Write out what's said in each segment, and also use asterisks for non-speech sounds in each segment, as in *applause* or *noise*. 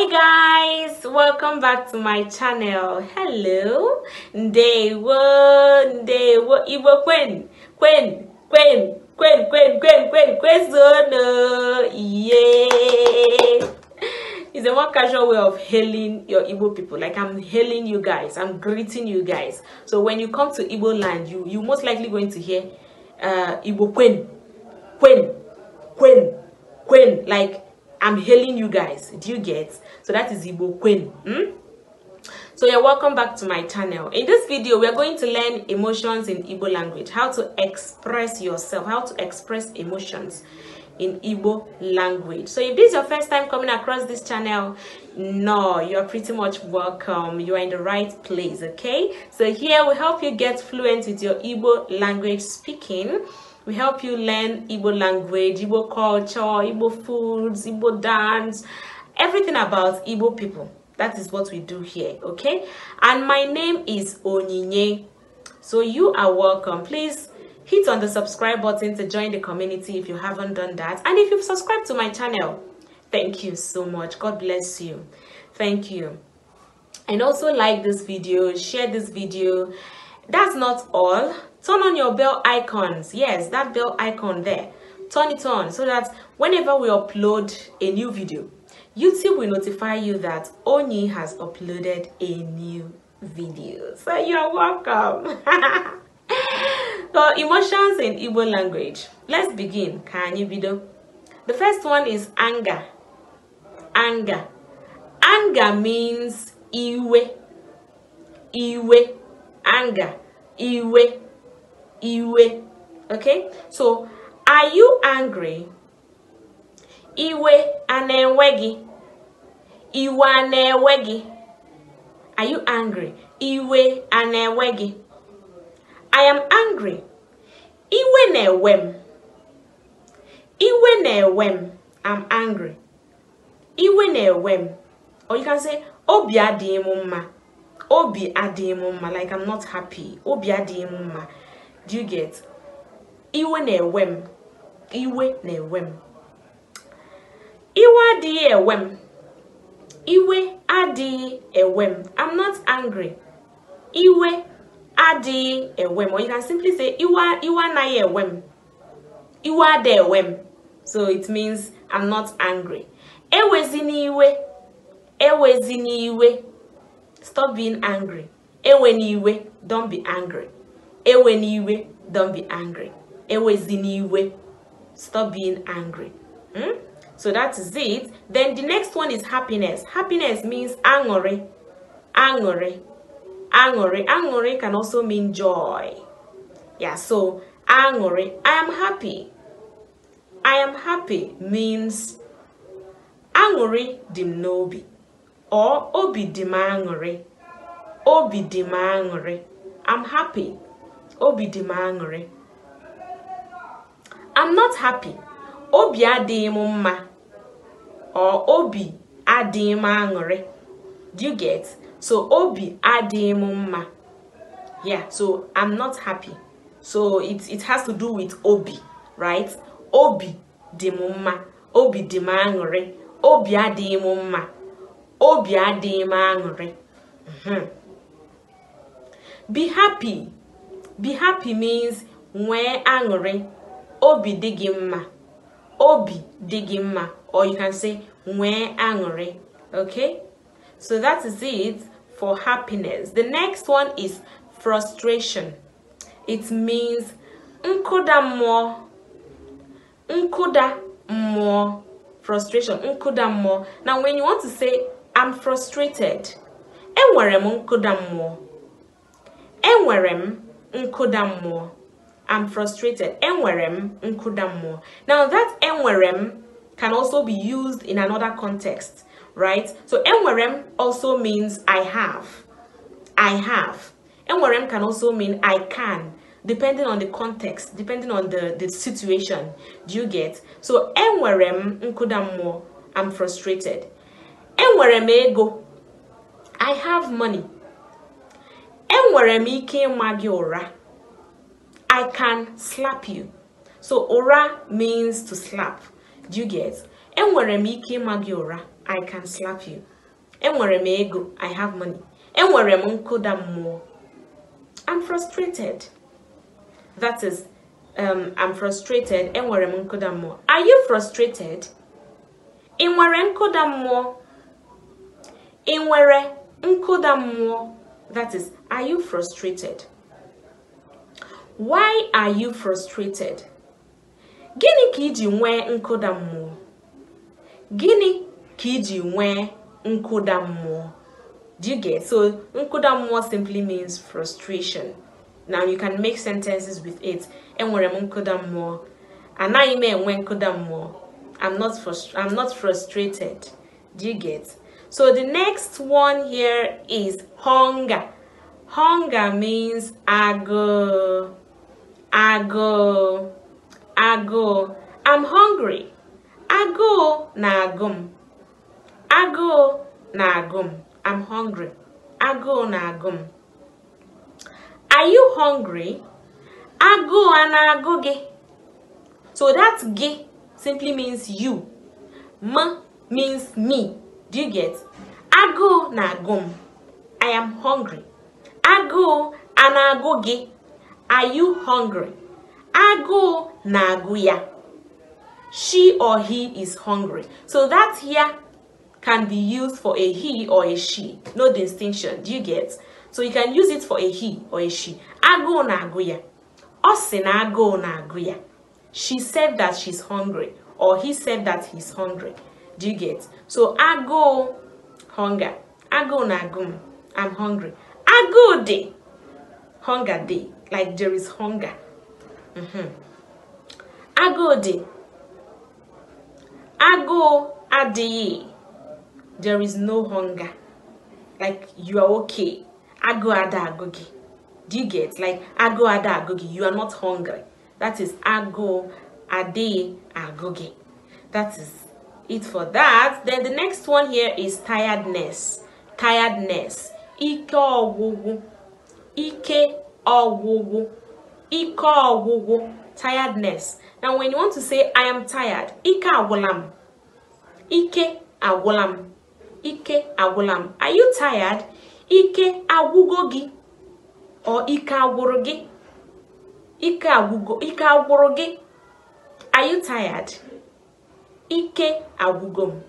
hi guys welcome back to my channel hello ndewo ndewo igbo kwen kwen kwen kwen kwen kwen kwen kwezono yeah it's a more casual way of hailing your igbo people like i'm hailing you guys i'm greeting you guys so when you come to igbo land you you most likely going to hear uh igbo Queen. Queen. Queen. Queen. like I'm hailing you guys. Do you get? So that is Igbo Queen. Hmm? So you're welcome back to my channel. In this video, we're going to learn emotions in Igbo language, how to express yourself, how to express emotions in Igbo language. So if this is your first time coming across this channel, no, you're pretty much welcome. You are in the right place, okay? So here we help you get fluent with your Igbo language speaking we help you learn Igbo language, Igbo culture, Igbo foods, Igbo dance, everything about Igbo people. That is what we do here, okay? And my name is Onyinye. So you are welcome. Please hit on the subscribe button to join the community if you haven't done that. And if you've subscribed to my channel, thank you so much. God bless you. Thank you. And also like this video, share this video. That's not all turn on your bell icons yes that bell icon there turn it on so that whenever we upload a new video youtube will notify you that oni has uploaded a new video so you're welcome *laughs* so emotions in Igbo language let's begin Can you video the first one is anger anger anger means iwe iwe anger iwe iwe okay so are you angry iwe a na-enwe gị iwe a na-enwe gị are you angry iwe a na-enwe gị i am angry iwe na enwe m iwe na enwe m i'm angry iwe na enwe m or you can say obi adịghị m mma obi adịghị m mma like i'm not happy obi adịghị m mma do you get iwe na-ewe m iwe na-ewe m iwe adịghị ewe m iwe adịghị ewe m i'm not angry iwe adịghị ewe m or you can simply say iwe iwe anaghị ewe m iwe adị ewe m so it means i'm not angry ewezi n'iwe ewezi n'iwe stop being angry ewe n'iwe don't be angry Ewe niwe, don't be angry. Ewe ziniwe, stop being angry. Hmm? So that is it. Then the next one is happiness. Happiness means angore, angore, angore. Angore can also mean joy. Yeah, so angore, I am happy. I am happy means angore dim or obi dim Obi dim I'm happy. obi dị m aṅụrị i'm not happy obi adịghị m mma or obi adịghị m aṅụrị do you get so obi adịghị m mma yeah so i'm not happy so it, it has to do with obi right obi dị m mma obi dị m aṅụrị obi adịghị m mma obi adịghị m aṅụrị mm-hmm. be happy be happy means when angry, obi dị obi dị or you can say when angry. okay so that is it for happiness the next one is frustration it means nkụda mmụọ nkụda mmụọ frustration nkụda mmụọ now when you want to say i'm frustrated enwere nkụda nkuda mmụọ I'm frustrated enwere m now that enwere can also be used in another context right so enwere also means I have I have enwere can also mean I can depending on the context, depending on the, the situation. Do you get? So, enwere m mmụọ, I'm frustrated. Enwere ego, I have money. enwere m ike ịma gị ụra i can slap you so ụra means to slap do you get enwere m ike ịma gị ụra i can slap you enwere m ego i have money enwere m nkụda mmụọ i'm frustrated that is um, i'm frustrated enwere m nkụda mmụọ are you frustrated ị nwere nkụda mmụọ ị nwere nkụda mmụọ That is, are you frustrated? Why are you frustrated? Gịnị ka iji nwee nkụda Guinea Gịnị ka iji nwee Do you get? So, nkụda simply means frustration. Now, you can make sentences with it. Enwere m nkụda mmụọ. Anaghị m mmụọ. I'm not, frust I'm not frustrated. Do you get? So the next one here is hunger. Hunger means ago, ago, ago. I'm hungry. Ago na agum. Ago na agum. I'm hungry. Ago na agum. Are you hungry? Ago ana ago ge. So that ge simply means you. Ma means me. Do you get? Agu na-agụ m. I am hungry. Agụụ na-agụ Are you hungry? Agụụ na-agụ She or he is hungry. So that here can be used for a he or a she. No distinction. Do you get? So you can use it for a he or a she. Agu na agu ya na-agụ She said that she's hungry or he said that he's hungry. do you get so agụụ hunger agụụ na agụ i'm hungry agụụ day hunger day. like there is hunger mm -hmm. agụụ dị agụụ adịghị there is no hunger like you are okay agụụ ada agụ gị do you get like agụụ ada agụ gị you are not hungry that is agụụ a day gị that is it for that. Then the next one here is tiredness. Tiredness. Ike ọgwụgwụ. Ike ọgwụgwụ. Ike ọgwụgwụ. Tiredness. Now when you want to say I am tired, ike agwụlam. Ike agwụlam. Ike agwụlam. Are you tired? Ike agwụgo Or ike agwụrụ gị. Ike agwụgo. Ike agwụrụ Are you tired? ike agwụgo m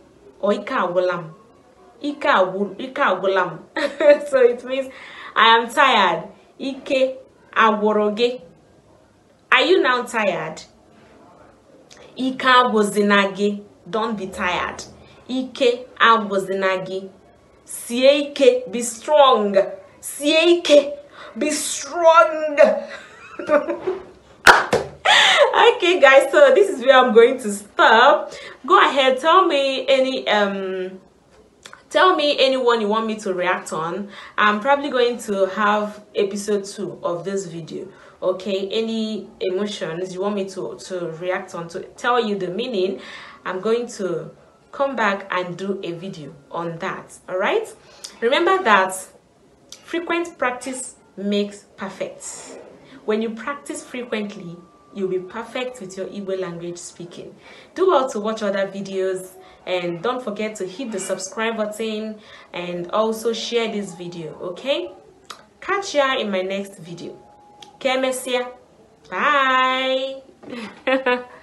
or ike agwụla m ike agwụla m *laughs* so it means i am tired ike agwụrụ gị are you now tired ike agwụzina gị don't be tired ike agwụzina gị sie ike be strong sie ike be strong *laughs* okay guys so this is where i'm going to stop go ahead tell me any um tell me anyone you want me to react on i'm probably going to have episode two of this video okay any emotions you want me to to react on to tell you the meaning i'm going to come back and do a video on that all right remember that frequent practice makes perfect when you practice frequently you'll be perfect with your Igbo language speaking. Do well to watch other videos and don't forget to hit the subscribe button and also share this video, okay? Catch ya in my next video. Kemesia. Bye! *laughs*